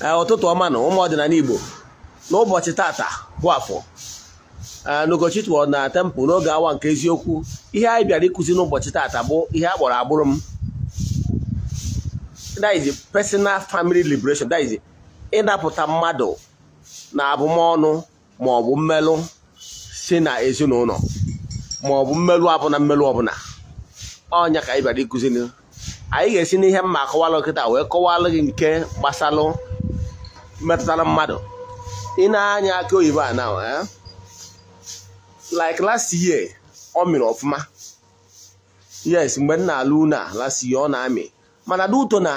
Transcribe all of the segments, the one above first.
ụtụtụ ọma na ụmụ ọdịnala Igbo n'ụbọchị tata bụ afọ n'ụbọchị tụọ na tempụ n'oge awa nke eziokwu ihe anyị bịara ịkụzi n'ụbọchị tata bụ ihe a kpọrọ agbụrụ m personal family liberation ịnapụta mmadụ na abụmọnụ ma ọ bụ mmelụ si na ezinụlọ ma ọ bụ mmelụ abụna mmelụ ọbụla ọnya ka anyị bịara ịkụzi anyị ga-esi n'ihe mma akọwalụ kịta wee kọwalụ gị nke gbasalụ metụtara mmadụ ị na-anya aka oyibo a na eh? like last year ọ mịrị ọfụma yes mgbe m na-alụ unu a last year ọ na-amị mana n'uto na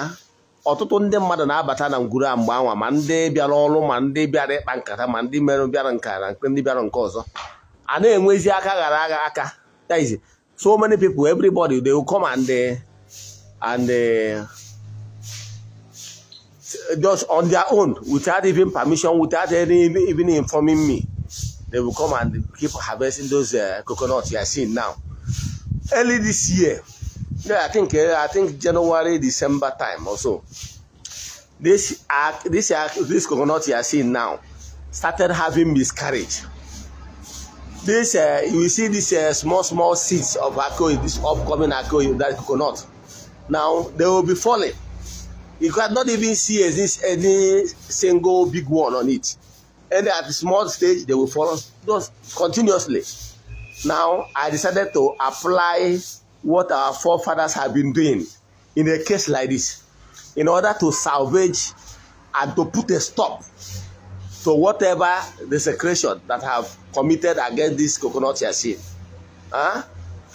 ọtụtụ ndị mmadụ na-abata na ngwuru a mgbe anwa ma ndị bịara ọrụ ma ndị bịara ịkpa nkata ma ndị merụ bịara nka na ndị bịara nke ọzọ a na-enwezi aka ghara agha aka so many people everybody they come and uh, and uh, just on their own, without even permission, without any, even informing me. They will come and keep harvesting those uh, coconuts you are seeing now. Early this year, yeah, I think uh, I think January, December time or so. This uh, this uh, this coconut you are seeing now started having miscarriage. This uh, you see this uh, small small seeds of akoy, this upcoming that coconut. Now they will be falling You cannot even see exist any single big one on it. And at the small stage, they will follow just continuously. Now, I decided to apply what our forefathers have been doing in a case like this in order to salvage and to put a stop to whatever the desecration that have committed against this coconut yashin. Huh?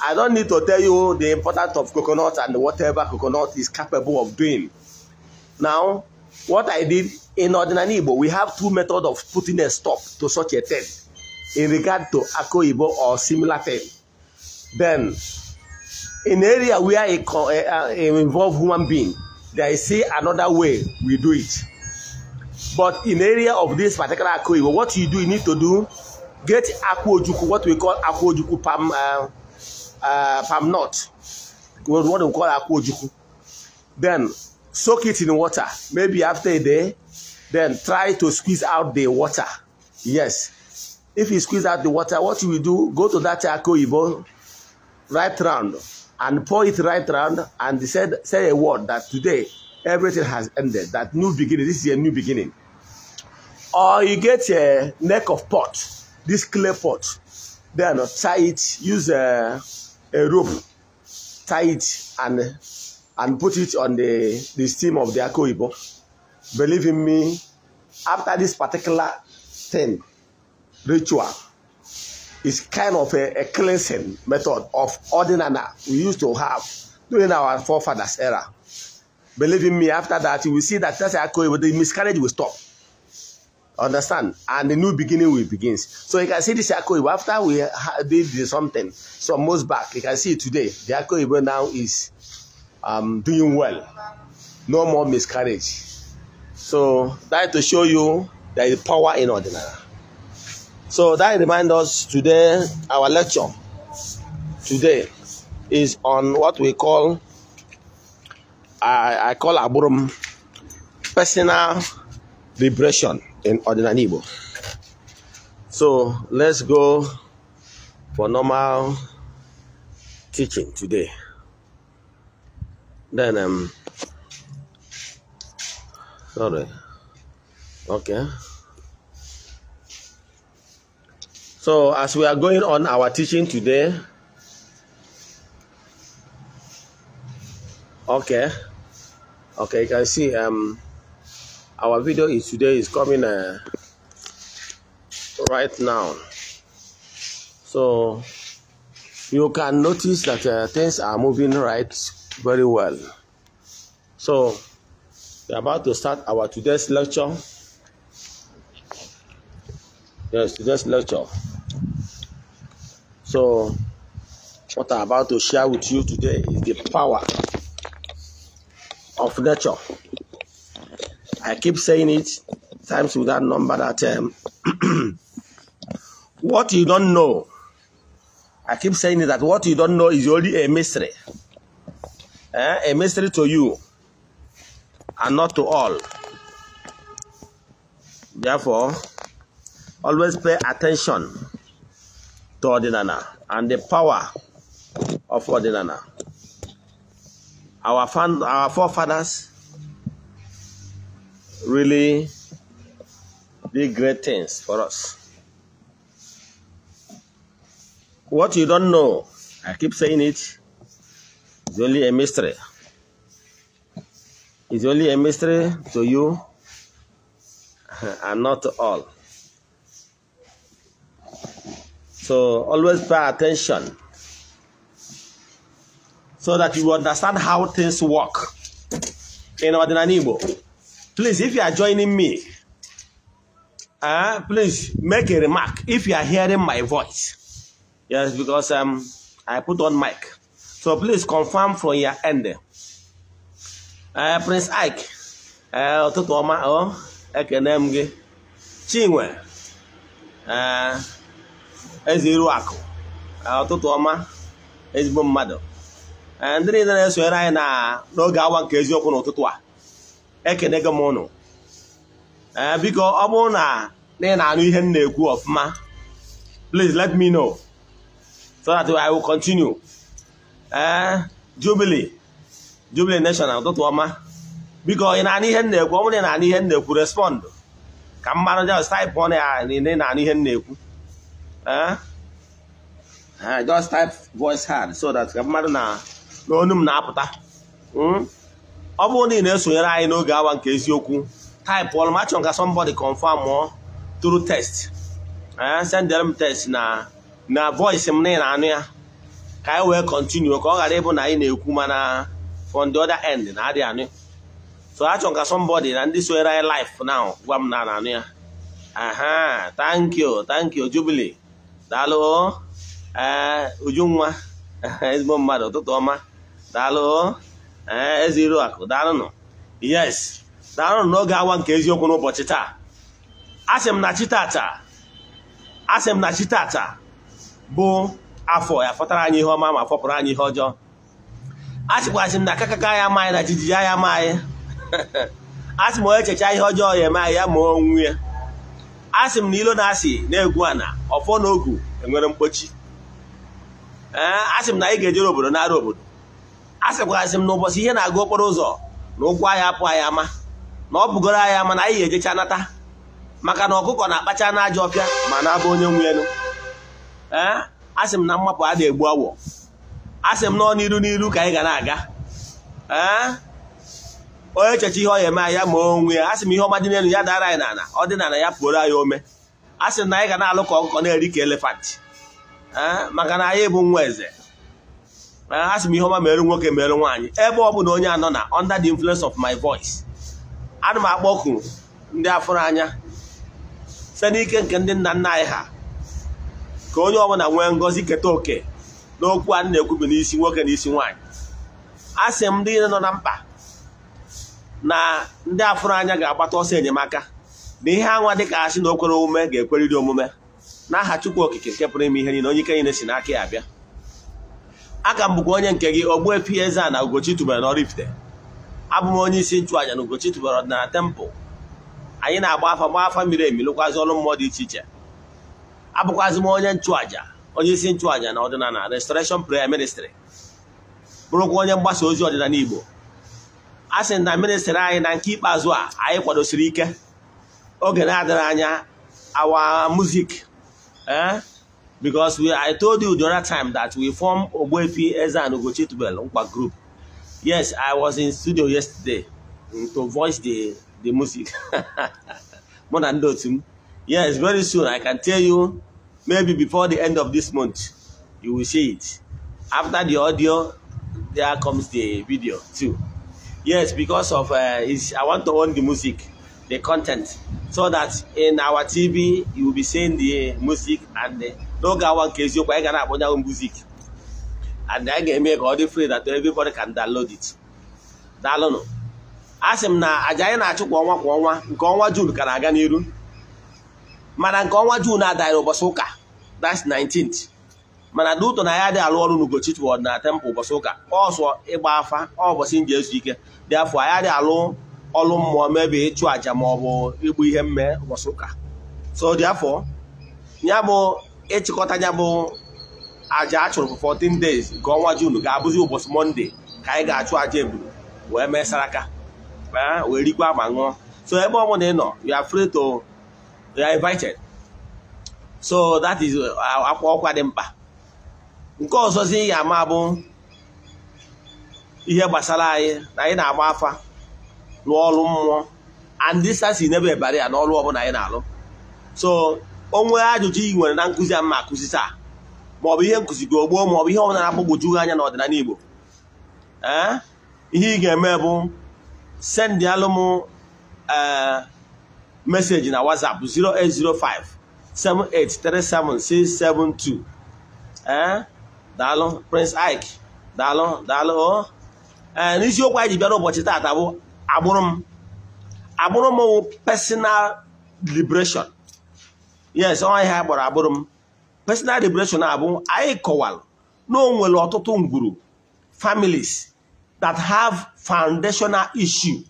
I don't need to tell you the importance of coconut and whatever coconut is capable of doing Now, what I did in ordinary Igbo, we have two methods of putting a stop to such a thing in regard to Akoibo or similar thing. Then, in area where it, uh, it involve human being, they see another way we do it. But in area of this particular Akoibo, what you do, you need to do, get Akwojuku, what we call Akwojuku palm, uh, uh, palm nut, what we call Akwojuku. Then, soak it in water maybe after a day then try to squeeze out the water yes if you squeeze out the water what you will do go to that charcoal evil right round and pour it right round and say say a word that today everything has ended that new beginning this is a new beginning or you get a neck of pot this clay pot then tie it use a, a rope tie it and and put it on the, the steam of the Akoibo. Believe in me, after this particular thing, ritual, is kind of a, a cleansing method of ordinana we used to have during our forefathers' era. Believe in me, after that, you will see that that Akoibo, the miscarriage will stop. Understand? And the new beginning will begins. So you can see this Akoibo, after we did something, some months back, you can see today, the Akoibo now is I'm doing well. No more miscarriage. So that to show you there is power in ordinary. So that reminds us today, our lecture today is on what we call, I, I call Aburum, personal vibration in ordinary Igbo. So let's go for normal teaching today. then um sorry okay so as we are going on our teaching today okay okay you can see um our video is today is coming uh, right now so you can notice that uh, things are moving right very well. So, we're about to start our today's lecture. Yes, today's lecture. So, what I'm about to share with you today is the power of nature. I keep saying it times without number that um, what you don't know, I keep saying that what you don't know is only a mystery eh, a mystery to you and not to all. Therefore, always pay attention to Ordinana and the power of Ordinana. Our, fan, our forefathers really did great things for us. What you don't know, I keep saying it, it's only a mystery. It's only a mystery to you and not to all. So always pay attention so that you understand how things work in Ordinary Please, if you are joining me, uh, please make a remark if you are hearing my voice. Yes, because um, I put on mic. So please confirm from your end. Uh, Prince Ike, eh, ụtụtụ ọma ọ Chinwe eh, eze iru akụ ụtụtụ ọma ezigbo mmadụ ndị niile na-esonyere anyị na n'oge awa nke eziokwu n'ụtụtụ a ekene gị m ụnụ biko ọ bụrụ na ị na-anụ ihe m na-ekwu ọfụma please let me know so that I will continue. ee eh, Jubilee Jubilee National ụtụtụ ọma biko ị na-anụ ihe na-ekwu ọ bụrụ ị na-anụ ihe na-ekwu respọndụ ka mmanụ just type ọnụ ya na ị na-anụ ihe na-ekwu eh? Eh, just type voice hard so that ka mmadụ na n'onu m na-apụta hmm? ọ bụrụ na ị na-esonyere anyị n'oge awa nke eziokwu type ọnụ ma chọrọ ka somebody confirm ọ through text send m test na na voice m na ị na-anụ ya ka anyị e wee kọntinu ka ọ ghara ịbụ na anyị na-ekwu mana from the other end na adị anụ so achọ ka somebody na ndị soere anyị life now gwa m na anụ ya aha thank you thank you Jubilee daalụ ee eh, ujunwa ezigbo mmadụ ụtụtụ ọma daalụ ee eh, ezi iru akụ daalụnụ yes daalụnụ n'oge awa nke eziokwu n'ụbọchị taa asị m na chi tata asị m na chi tata bụ afọ ya fọtara anyị ihe ọma ma fọpụrụ anyị ihe ọjọọ a m na kakaka ya amaghị na jijiji ya amaghị a sị m onye chechaa ihe ọjọọ ya eme ya ma onwe ya Asị m na ilo na-asị na-egwu ana ọfọ na ogu enwere mkpochi ee asị m na anyị ga-ejere obodo na obodo a sịkwasị m na ụbọchị ihe na-agụ okporo ụzọ na ụkwụ anyị apụ anyị ama na ọ bụgoro anyị ama na anyị ga-ejecha nata maka na ọkụkọ na-akpacha n'ajọ ọpịa ma na-abụ onye nwenu ee asị m na mmapụ a na-egbu awọ asị m na ọ n'iru n'iru ka anyị ga na-aga onye echecha ihe ọ eme ya ma onwe ya asị m ihe ọma dị n'elu ya dara anyị n'ala ọ dị n'ala ya pụrụ anyị ome asị m na anyị ga na-alụ ka ọkụkọ na-eri ka elefant maka na anyị bụ nwa eze asị m ihe ọma mere nwoke merụ nwaanyị ebe ọ bụla onye anọ na under the influence of my voice ana m akpọku ndị afọrọ anya site n'ike nke ndị nna nna anyị ha ka onye ọbụla nwee ngọzi keta oke n'okwu a na-ekwubi n'isi nwoke na isi nwaanyị a sị m ndị nọ na mkpa na ndị afụrụ anya ga-agbata ọsọ enyemaka na ihe anwa ka asị na okwere omume ga-ekweriri omume n'aha Chukwu Okike nke pụrụ ime ihe niile onye ike niile si n'aka ya abịa aka m bụkwa onye nke gị Ogbuefi eze na Ugochi tubelu n'Oraifite abụ m onye isi nchụaja na Ugochi tubelu ọdịnala tempụl anyị na-agba afa gbaa afa miri emi lụkwazị ọrụ mmụọ dị iche iche abụkwazị m onye nchụaja onye isi nchụaja na ọdịnala restoration prayer ministry bụrụkwa onye mgbasa ozi ọdịnala Igbo a sị na ministri anyị na nke ikpeazụ a anyị kwadosiri ike oge na adịrị anya our music eh? because I told you the other time that we form Ogbuefi Eze and Ugochi Nkwa group yes I was in studio yesterday to voice the the music mụ na ndị m yes very soon I can tell you Maybe before the end of this month, you will see it. After the audio, there comes the video too. Yes, because of uh, I want to own the music, the content, so that in our TV you will be seeing the music and the n'oge awa nke eziokwu anyị ga na-akpọnyanwụ music and anyị ga-eme ka ọ dị free that everybody can download it. Daalụnụ. A sị m na àjà anyị na-achụ kwa ọnwa kwa ọnwa nke ọnwa June ka na-aga n'iru mana nke ọnwa June adịghị ụbọchị ụka that's 19th mana na na ya dị alụ ọrụ n'Ugochi Church na temple ụbọchị ụka ọsọ ịgba afa ọbọchị m ji ezu ike dị afọ anyị dị alụ ọrụ mmụọ mebe ịchụ àjà ma ọ bụ igbu ihe mme ụbọchị ụka so dị afọ ya bụ ịchịkọta ya bụ àjà a chụrụ for 14 days nke ọnwa June ga-abụzi ụbọchị Mọnde ka anyị ga-achụ aja eburu wee mee saraka wee rikwa ma ṅụọ so ebe ọ ị nọ you are free to they are invited so that is uh, akwa ọkwa dị mkpa nke ọzọzi ya ama bụ ihe gbasara anyị na anyị na-agba afa n'ọrụ mmụọ and this has never ebara ya n'ọrụ ọbụla anyị na-alụ so onwe ajụjụ ị nwere na nkụzi a mma akụzi taa maọbụ ihe nkụzi gị ogbo maọbụ ihe ọbụla na-agbagwoju anya n'ọdịnala Igbo ee eh? ihe ị ga-eme bụ sendịalụ m eh, message na whatsapp zero zero eight eight five seven seven three six seven two. eh daalụ prince ike daalụ daalụ o oh. ee eh, n'isiokwu anyị ji bịara ụbọchị taata bụ agbụrụ m agbụrụ m personal liberation yes ọnwa ihe anyị kpọrọ agbụrụ m personal liberation abụ anyị kọwalụ na o nwere ọtụtụ ngwuru families that have foundational issue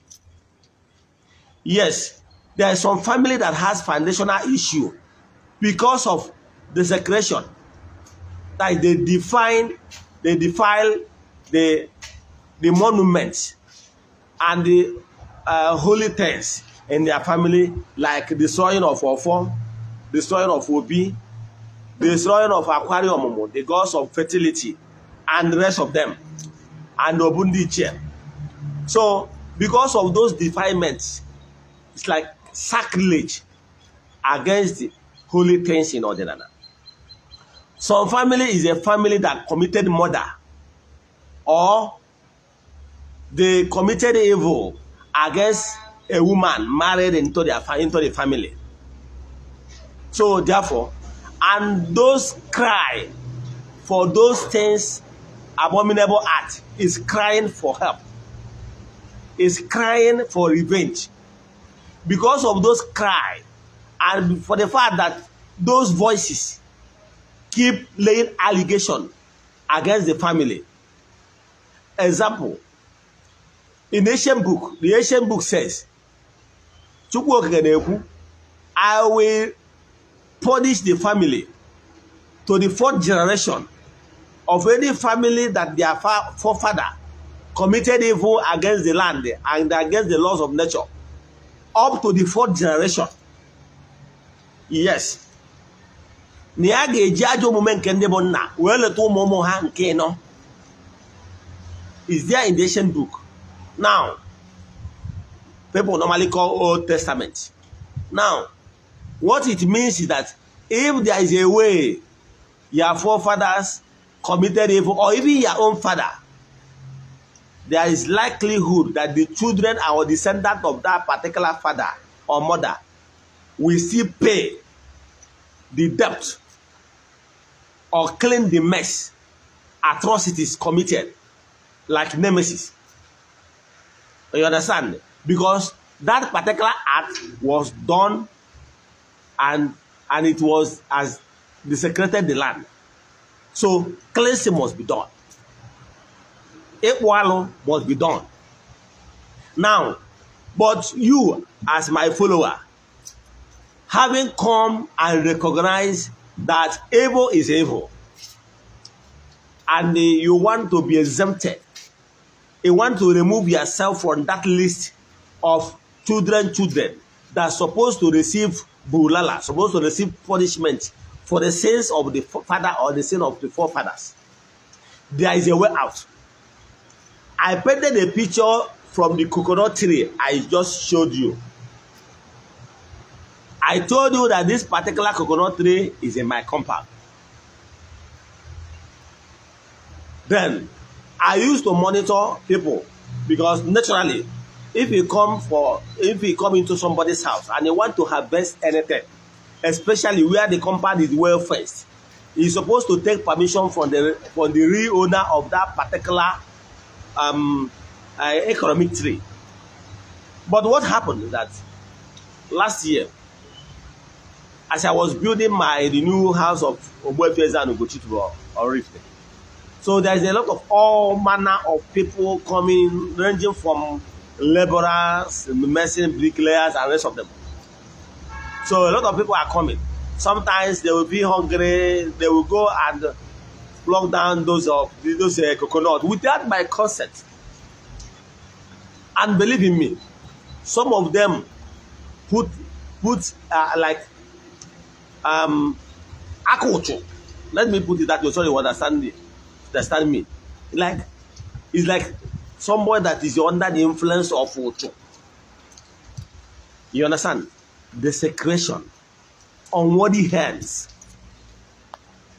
yes there is some family that has foundational issue because of desecration like they define they defile the the monuments and the uh, holy things in their family like destroying of Ofo, destroying of Obi, destroying of Aquarium, the gods of fertility, and the rest of them, and chair So, because of those defilements, it's like sacrilege against the holy things in Ordinana. Some family is a family that committed murder or they committed evil against a woman married into, their, into the family. So therefore, and those cry for those things, abominable act, is crying for help, is crying for revenge. because of those cry and for the fact that those voices keep laying allegation against the family. Example, in ancient book, the ancient book says, I will punish the family to the fourth generation of any family that their forefather committed evil against the land and against the laws of nature. up to the fourth generation yes na ya ga-eji ajọ omume nke ndị bụ nna wee leta ụmụ ụmụ ha nke nọ is there in the ancient book now people normally call old testament now what it means is that if there is a way your forefathers committed evil or even your own father there is likelihood that the children or descendant of that particular father or mother will still pay the debt or clean the mess atrocities committed like nemesis you understand because that particular act was done and and it was as desecrated the land so cleansing must be done Ekwalu must be done. Now, but you as my follower, having come and recognized that evil is evil, and you want to be exempted, you want to remove yourself from that list of children, children that are supposed to receive bulala, supposed to receive punishment for the sins of the father or the sin of the forefathers. There is a way out. I painted a picture from the coconut tree I just showed you. I told you that this particular coconut tree is in my compound. Then, I used to monitor people because naturally, if you come for, if you come into somebody's house and you want to harvest anything, especially where the compound is well fenced, you're supposed to take permission from the from the real owner of that particular um, uh, economic tree. But what happened is that last year, as I was building my new house of Obuefeza and Ugochituro or Rifte, so there's a lot of all manner of people coming, ranging from laborers, merchants, bricklayers, and rest of them. So a lot of people are coming. Sometimes they will be hungry, they will go and Block down those of uh, those uh, coconut without my consent. And believe in me, some of them put put uh, like um akuchu. Let me put it that way. Sorry, you understand me? Understand me? Like it's like someone that is under the influence of uchu. You understand? Desecration, unworthy hands.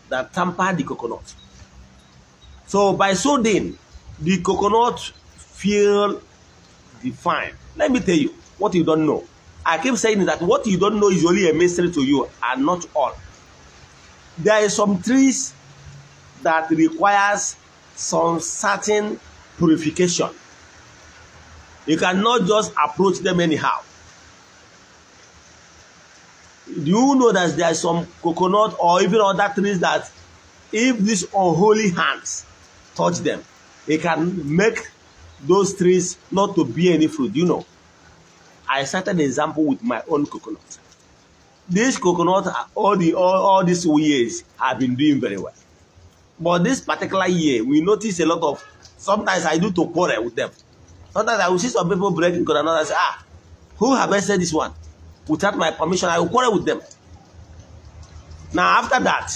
that tamper the coconut. So by so doing, the coconut feel defined. Let me tell you what you don't know. I keep saying that what you don't know is only a mystery to you and not all. There are some trees that requires some certain purification. You cannot just approach them anyhow do you know that there are some coconut or even other trees that if these unholy hands touch them it can make those trees not to be any fruit you know i started the example with my own coconut this coconut all the all, all these years have been doing very well but this particular year we notice a lot of sometimes i do to quarrel with them sometimes i will see some people breaking coconut and say ah who harvested this one without my permission, I will quarrel with them. Now, after that,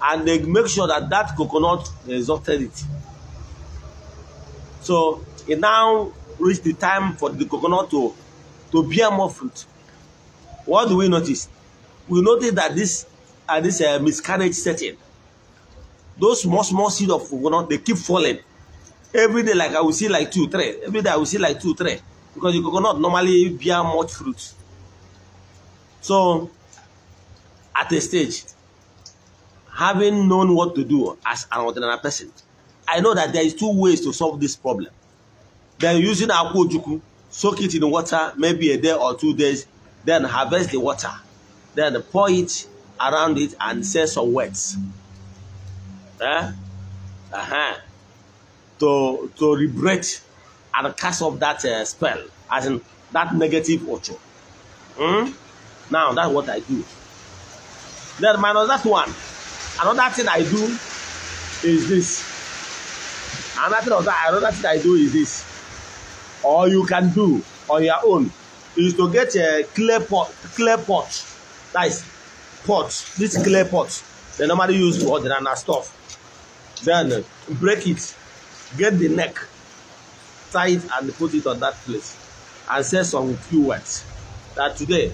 and they make sure that that coconut exhausted it. So it now reached the time for the coconut to, to bear more fruit. What do we notice? We notice that this uh, this uh, miscarriage setting. Those small small seed of coconut they keep falling. Every day, like I will see like two, three. Every day I will see like two, three. Because the coconut normally bear much fruit. So, at a stage, having known what to do as an ordinary person, I know that there is two ways to solve this problem. Then using akwojuku, soak it in water, maybe a day or two days, then harvest the water, then pour it around it and say some words. Eh? Uh-huh. To to liberate and cast off that uh, spell, as in that negative ocho. Hmm? Now that's what I do. Then minus that one, another thing I do is this. Another thing, that, another thing I do is this. All you can do on your own is to get a clay pot, clay pot, nice pot, this clay pot. They normally use for ordinary stuff. Then break it, get the neck, tie it and put it on that place, and say some few words. That today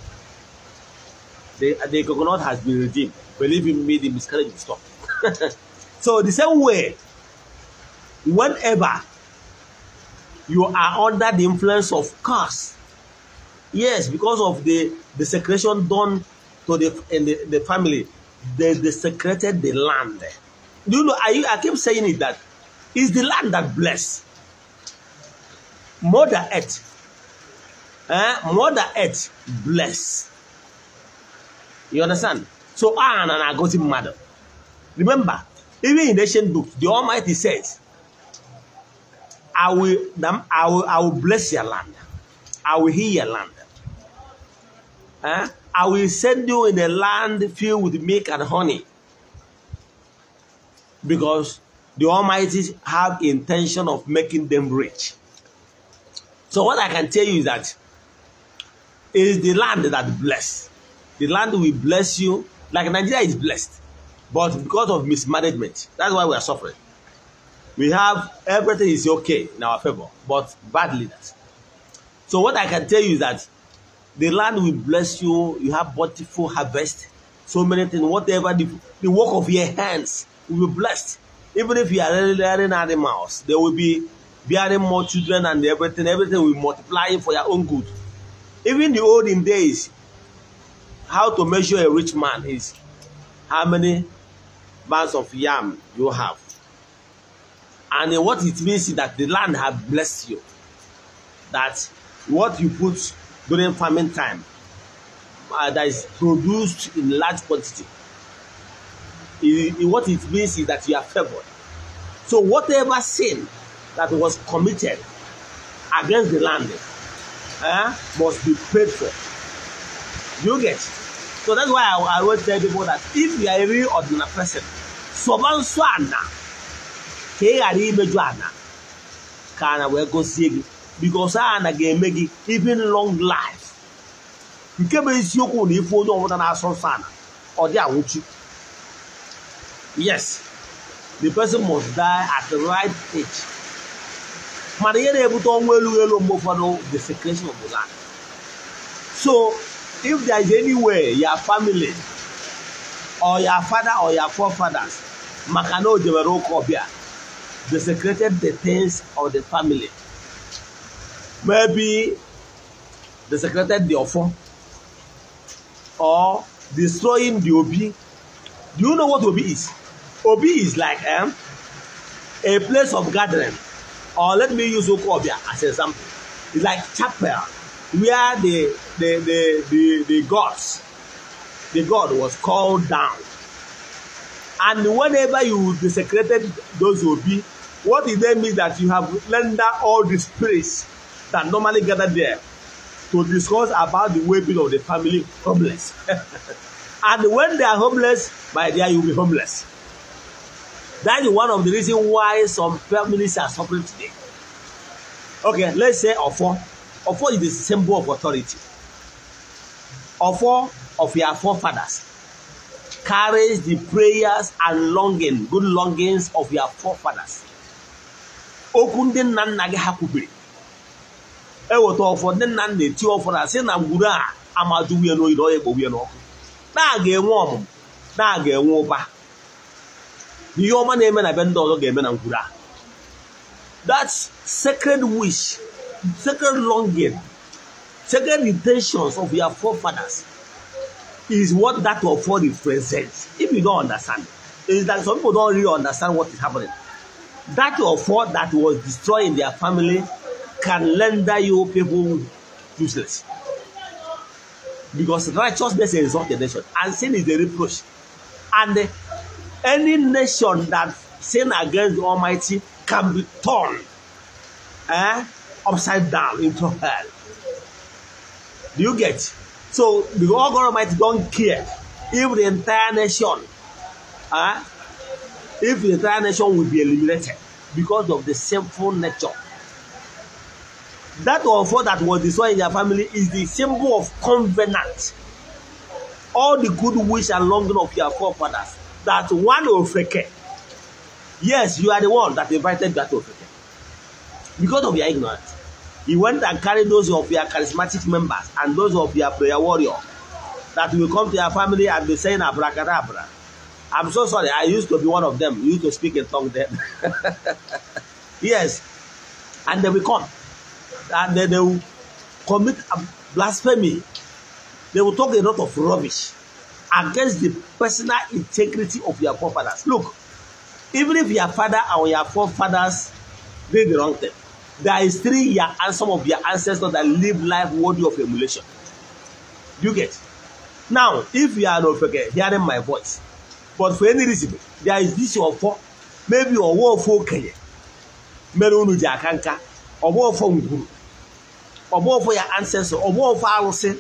the, uh, the coconut has been redeemed. Believe in me, the miscarriage will stop. so the same way, whenever you are under the influence of curse, yes, because of the the secretion done to the in the, the family, they desecrated the land. Do you know? I I keep saying it that it's the land that bless. Mother Earth, eh? Mother Earth bless. You understand? So I and an aggressive mother. Remember, even in the ancient books, the Almighty says, I will, I will, I will bless your land. I will heal your land. Huh? Eh? I will send you in a land filled with milk and honey. Because the Almighty have intention of making them rich. So what I can tell you is that it is the land that bless. The land will bless you. Like Nigeria is blessed, but because of mismanagement, that's why we are suffering. We have everything is okay in our favor, but bad leaders. So what I can tell you is that the land will bless you. You have bountiful harvest, so many things. Whatever the, the work of your hands will be blessed. Even if you are rearing animals, there will be bearing more children and everything. Everything will multiply for your own good. Even the olden days, how to measure a rich man is how many bags of yam you have. And what it means is that the land have blessed you. That what you put during farming time uh, that is produced in large quantity. It, it, what it means is that you are favored. So whatever sin that was committed against the land uh, must be paid for. You get. So that's why I, I always tell people that if you are a real ordinary person, sọba nso ana ka ị ghara imeju ana ka ana wee gọzie gị because ana ga-eme gị even long life nke bụ isiokwu na ife onye ọbụla na-asọ nsọ ana ọ dị anwụchi yes the person must die at the right age mana ihe na-ebute ọnwụ elu elu mgbe ụfọdụ desecration of the land so if there is any way, your family or your father or your forefathers maka na o jebere ụka ọbịa desecrated the things of the family maybe desecrated the ọfọ or destroying the obi do you know what obi is obi is like um, a place of gathering or let me use okobia as an example it's like chapel where the the the the, the gods the god was called down and whenever you desecrated those obi what it then means that you have rendered all the space that normally gather there to discuss about the well-being of the family homeless and when they are homeless by there you be homeless that is one of the reason why some families are suffering today okay let's say ofo Ofo is the symbol of authority. Ofo of your forefathers carries the prayers and longing, good longings of your forefathers. Okwu ndị nna nna gị ha kwubiri eweta ọfọ ndị nna nna eti ọfọ na sị na ngwuru a amaju nwunye n'oyi na ọ ya n'ọkụ na-aga enwe ọmụmụ na-aga enwe ụba ihe ọma na-eme na be ndị ọzọ ga-eme na ngwuru a that sacred wish second longing, second intentions of your forefathers is what that of all represents. If you don't understand, is that some people don't really understand what is happening. That of all that was destroyed in their family can render you people useless. Because righteousness is not the nation, and sin is the reproach. And any nation that sin against the Almighty can be torn. Eh? upside down into hell. Do you get? So the whole government don't care if the entire nation, uh, if the entire nation will be eliminated because of the sinful nature. That of what that was destroyed in their family is the symbol of covenant. All the good wish and longing of your forefathers that one ofeke. Yes, you are the one that invited that ofeke because of your ignorance. He went and carried those of your charismatic members and those of your prayer warrior that will come to your family and be saying abracadabra. I'm so sorry, I used to be one of them. You used to speak in tongue then. yes. And they will come. And they will commit blasphemy. They will talk a lot of rubbish against the personal integrity of your forefathers. Look, even if your father or your forefathers did the wrong thing, there is three year and some of their ancestors that live life worthy of emulation you get now if you are not okay, hearing my voice but for any reason there is this your fault maybe ọwọ́ ọfọ okenye mere unu ji aka nka ọgbọ ọfọ ngwuru ọgbọ ọfọ ya ancestor ọgbọ ọfọ arụsị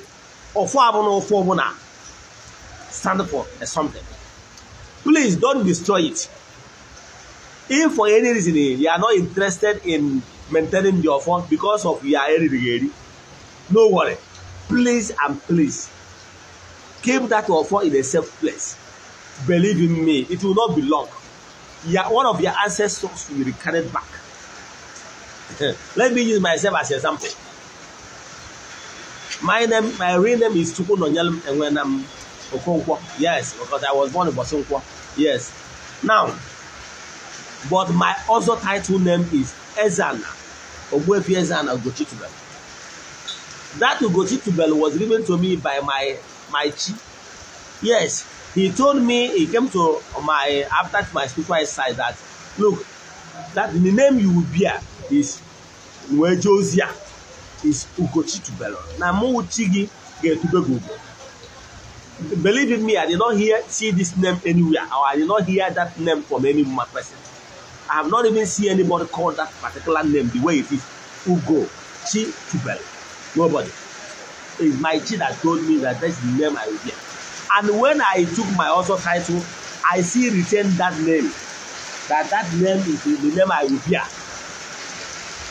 ọfọ abụ na ọfọ ọbụla stand for something please don't destroy it if for any reason you are not interested in maintaining your phone because of your erigeri no worry please and please keep that your phone in a safe place believe in me it will not be long your one of your ancestors will be carried back let me use myself as example my name my real name is chukwunonyel enwenam okonkwo yes because i was born in bosonkwo yes now but my also title name is ezana Ogbuefi eze and Ugochi Tubelu. That Ugochi Tubelu was given to me by my my chief. Yes, he told me he came to my after my spiritual side that look that the name you will bear is Nwejosia is Ugochi Tubelu. Na mụ uchi gị ga-etube gị Believe in me, I did not hear see this name anywhere or I did not hear that name from any person. I have not even seen anybody call that particular name the way it is Ugo Chi Tubel. Nobody. It's my chi that told me that that's the name I will get. And when I took my also title, I see retained that name. That that name is the name I will hear.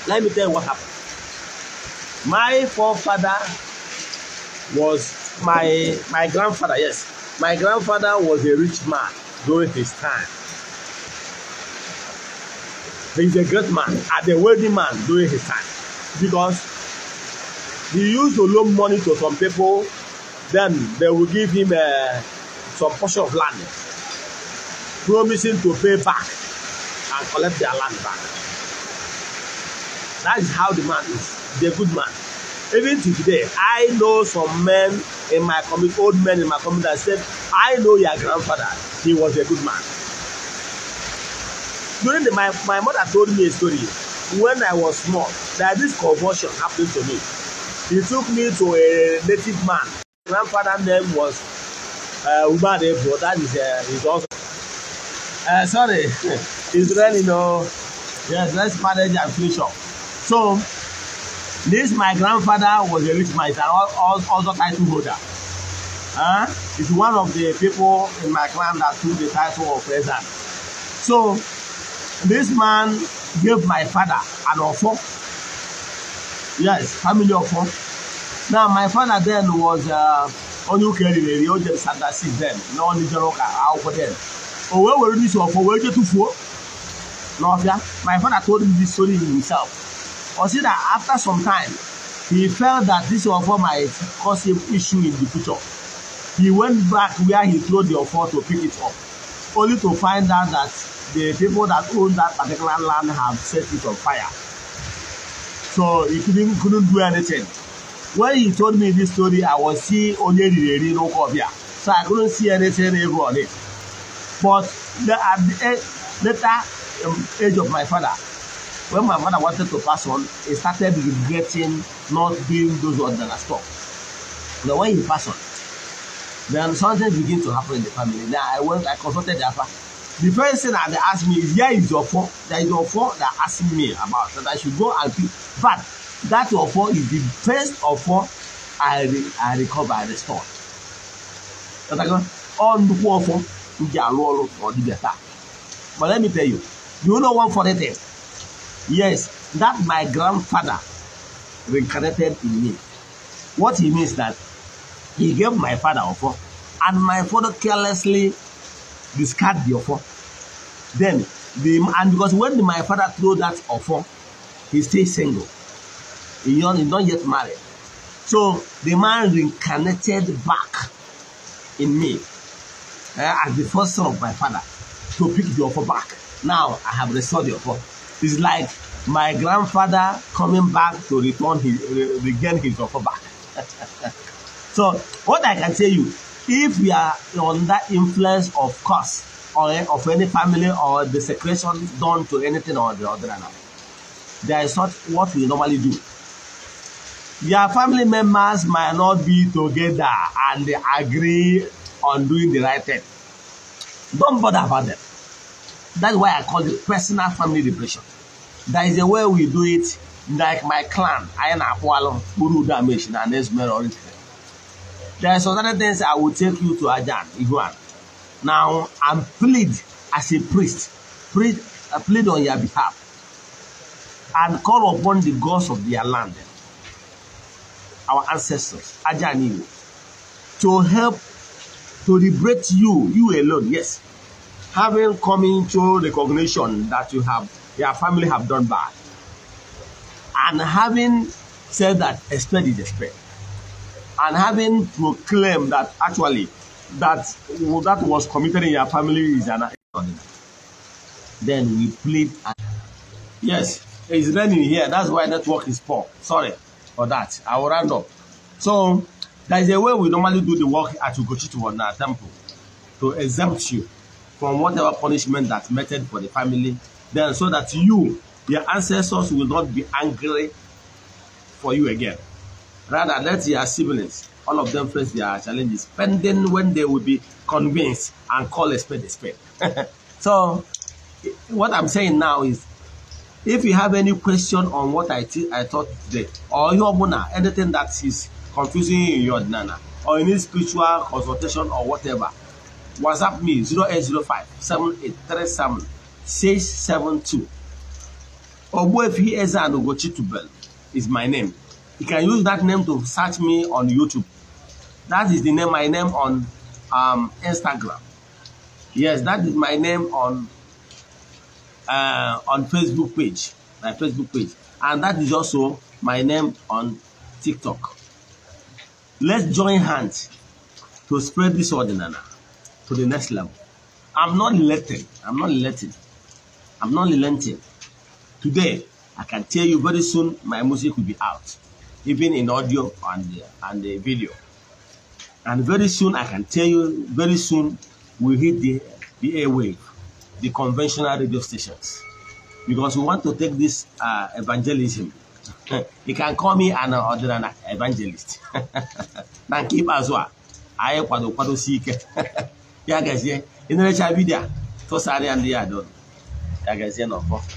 Let me tell you what happened. My forefather was my my grandfather, yes. My grandfather was a rich man during his time. he's a great man and a wealthy man during his time because he used to loan money to some people then they will give him uh, some portion of land promising to pay back and collect their land back that is how the man is he's a good man even till today i know some men in my community old men in my community that said i know your grandfather he was a good man during the my my mother told me a story when I was small that this convulsion happened to me he took me to a native man grandfather name was uh, Umar Ebro that is uh, his also uh, sorry his friend you know yes let's manage inflation so this my grandfather was a rich man he's an also title holder huh? he's one of the people in my clan that took the title of president so This man gave my father an offer. Yes, family offer. Now, my father then was uh, onye ukeri na-eri o jere sandasi then na onye jere ụka akwụkwọ then o wee were dis ọfọ wee je tụfuo n'ọfịa my father told me this story himself o see that after some time he felt that this ọfọ might cause him issue in the future he went back where he throw the offer to pick it up only to find out that the people that own that particular land have set it on fire. So he couldn't, couldn't do anything. When he told me this story, I was seeing only the Rino Kobia. So I couldn't see anything evil on it. But the, at the later um, age of my father, when my mother wanted to pass on, he started regretting not doing those ones that are stopped. Now when he passed on, then something began to happen in the family. Then I went, I consulted the father. The first thing that they asked me is, here is your phone. There is your phone that asked me about that I should go and pick. But that your phone is the first of I, re I recover, and restore. That I go, the nnukwu phone, m ji arụ ọrụ ka ọ dịbịa But let me tell you, you know one for the thing? Yes, that my grandfather reincarnated in me. What he means that he gave my father phone, and my father carelessly discard the offer. Then, the, and because when my father threw that offer, he stayed single. He not, he not yet married. So the man reincarnated back in me uh, as the first son of my father to pick the offer back. Now I have restored the offer. It's like my grandfather coming back to return his, regain his offer back. so what I can tell you if you are under influence of curse or of any family or desecration done to anything or the other now that is not what we normally do your family members might not be together and they agree on doing the right thing don't bother about them that's why i call it personal family depression That is the way we do it like my clan ayana akwalo urudu ameshin and esmeralda There are some other things I will take you to Ajan, Iguan. Now, I'm plead as a priest, plead, I uh, plead on your behalf, and call upon the gods of their land, our ancestors, Ajan Iguan, to help to liberate you, you alone, yes. Having come into recognition that you have, your family have done bad, and having said that, expect is expect and having proclaimed that actually that well, that was committed in your family is an then we plead yes it's raining here that's why network is poor sorry for that i will round up so there is a way we normally do the work at Ugochitu on our temple to exempt you from whatever punishment that's meted for the family then so that you your ancestors will not be angry for you again Rather, let your siblings, all of them face their challenges, pending when they will be convinced and call a spade a spade. so, what I'm saying now is, if you have any question on what I, I taught today, or your bona, anything that is confusing you in your nana, or any spiritual consultation or whatever, WhatsApp me 0805 7837 672. Ogbuefi Eze Anogochi is my name. You can use that name to search me on YouTube. That is the name, my name on um, Instagram. Yes, that is my name on uh, on Facebook page, my Facebook page. And that is also my name on TikTok. Let's join hands to spread this ordinana to the next level. I'm not relenting. I'm not relenting. I'm not relenting. Today, I can tell you very soon my music will be out. even in audio and and the video. And very soon, I can tell you, very soon we hit the the airwave, the conventional radio stations, because we want to take this uh, evangelism. you can call me an other ordinary evangelist. na nke ikpeazụ a anyị kwado kwadosi ike ya gazie ịnụrecha vidio tụsara ya ndị ya doro ya gazie n'ọfọ